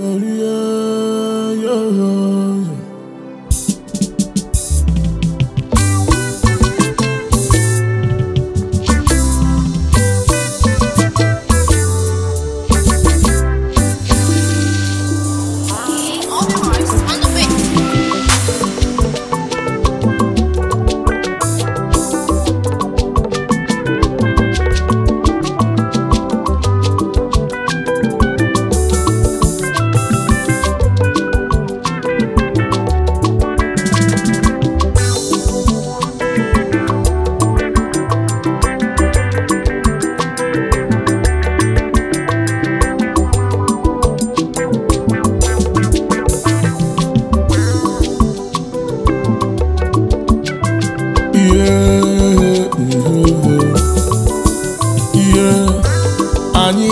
yeah, yeah, yeah.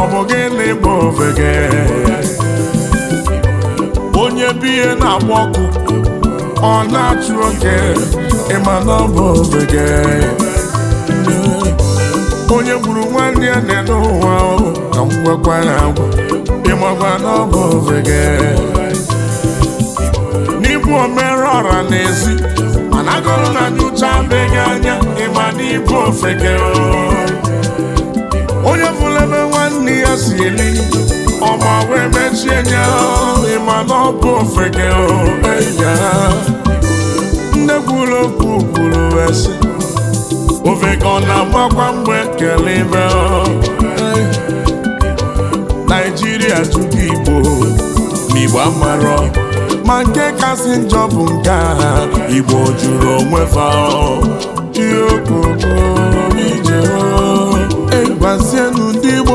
ọ bụ gịnị bụ ofeke onye bụ ihe na-agba ọkụ ọ na-achụ oke ịma na ọ bụ ofeke onye gburu nwanne ya na-ene ụwa ka m gwakwa ya agwa ịmakwa na ọ bụ ofeke n'ịbụ omere ọra n'ezi mana agụrụ na nyocha beghị anya ịma na ịbụ ofeke onye fụlebe n'ihe ya si eri ọma wee mechie nya ịma na ọ bụ ofeke ya nne kwuru okwu kwuru wee sị ofeke ọ na-agbakwa mgbe kele ibe naijiria jụgo igbo n'igbo amarọ ma nke kasị njọ bụ nke a igbo jụrụ onwe fa ihe okoko ije egwazienu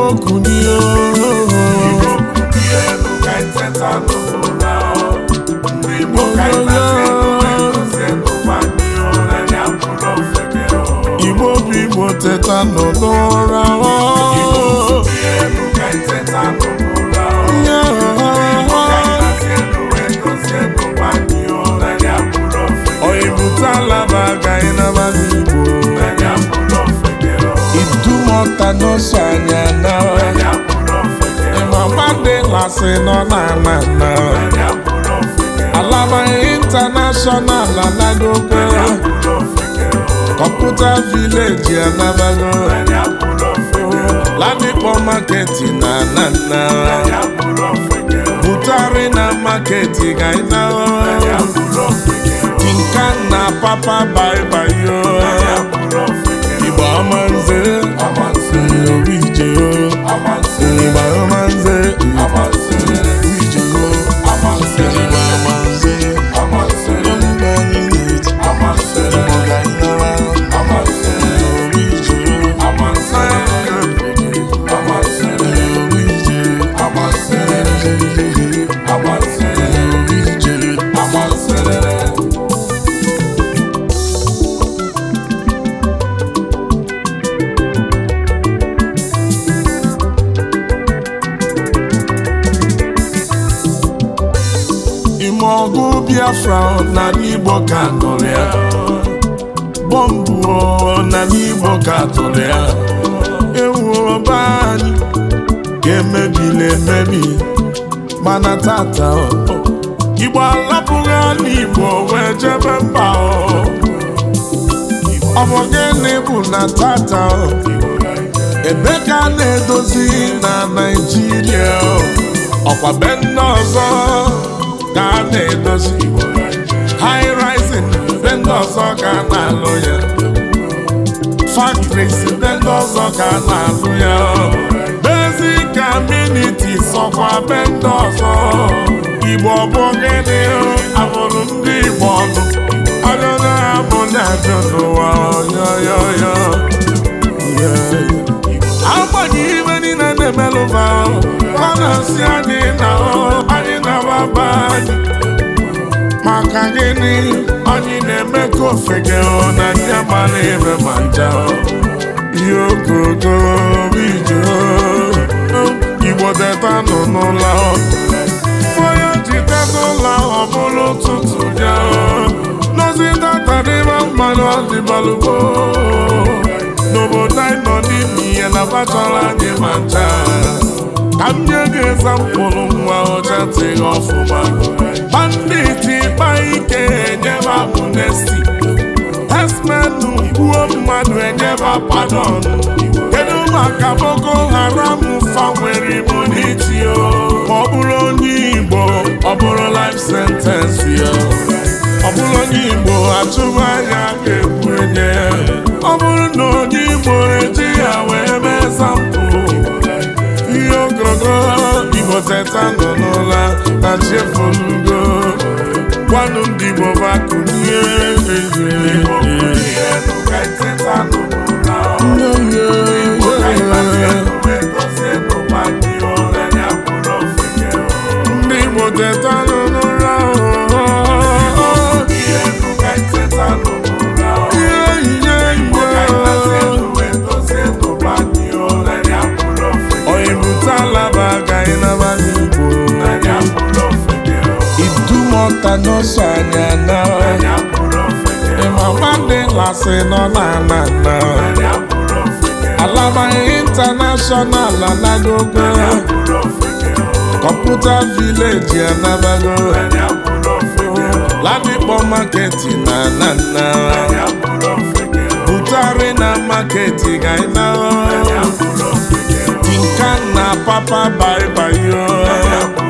okwu asị nọ n'ala na alaba intanashọnal anagogo kọmputa vileji anabago ladipo maketi na anana butari na maketi gaina tinka na papa baibayo igba ọma nze obi ije o igba Biafra n'ala Igbo ka tụrụ ya bọmbụ n'ala Igbo ka tụrụ ya ewu ọba anyị ga na emebi mana tata Igbo alapụghị ala Igbo wee jebe mba ọ bụ gịnị bụ na tata ebe ka a na-edozi na Naịjirịa ọkwa be ndị ọzọ ka a na iwu high rising be ndị ọzọ ka na-alụ ya factories be ndị ọzọ ka na-alụ ya basic sọkwa be ndị igbo bụ gịnị abụrụ ndị igbo ọnụ ajọjọ ha bụ ndị ajọ n'ụwa agbanyeghị ibe niile na ọ gịnị anyị na-eme ka ofege na ndị agbala ebe ma nja ihe ogogo ije igbo teta nọ n'ụlọ onye ji teta ụlọ ọ bụrụ ụtụtụ ya nozi tatadịba mmanụ ọdịbalụgbo n'obodo anyị nọ n'ime ihe na bachara anyị ma ncha ka m nye gị ezampụlụ nwa ọcha tịghị ọfụma banditi ịkpa ike enyeba amnesti esmenu gbuo mmadụ enyeba padon kedu maka Boko Haram fanwere ibu n'iti ya ma ọ bụrụ onye Igbo ọ bụrụ life sentence ya ọ bụrụ onye Igbo atụmanya ga-egbu enye ọ bụrụ na onye Igbo eji ya wee mee sampụ ihe ogologo Igbo teta ọnụ ndị Igbo bụ akụ n'ụzọ anyị na ịmama ndị lasị nọ n'ala na alaba intanashọnal anagogo kọmputa vileji anabago ladikpọ maketi na anana butari na maketi ga ịna tinka na papa baibayo